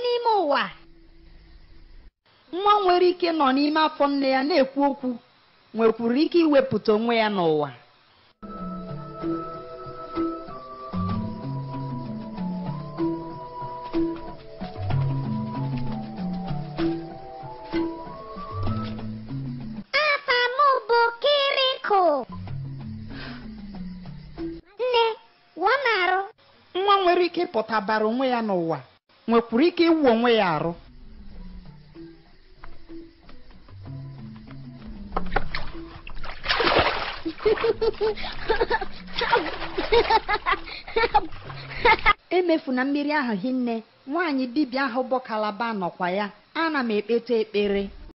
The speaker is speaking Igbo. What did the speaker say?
n'ime ụwa nwa nwere ike nọ n'ime afọ nne ya na-ekwu okwu nwekwuru ike iwepụta onwe ya n'ụwa nwa nwere ike ịpụta bara onwe ya n'ụwa nwekwuru ike iwu onwe ya arụ emefu na mmiri ahụ hinne nwaanyị dibịa ahụ bụ kalaba nọkwa ya ana m ekpeta ekpere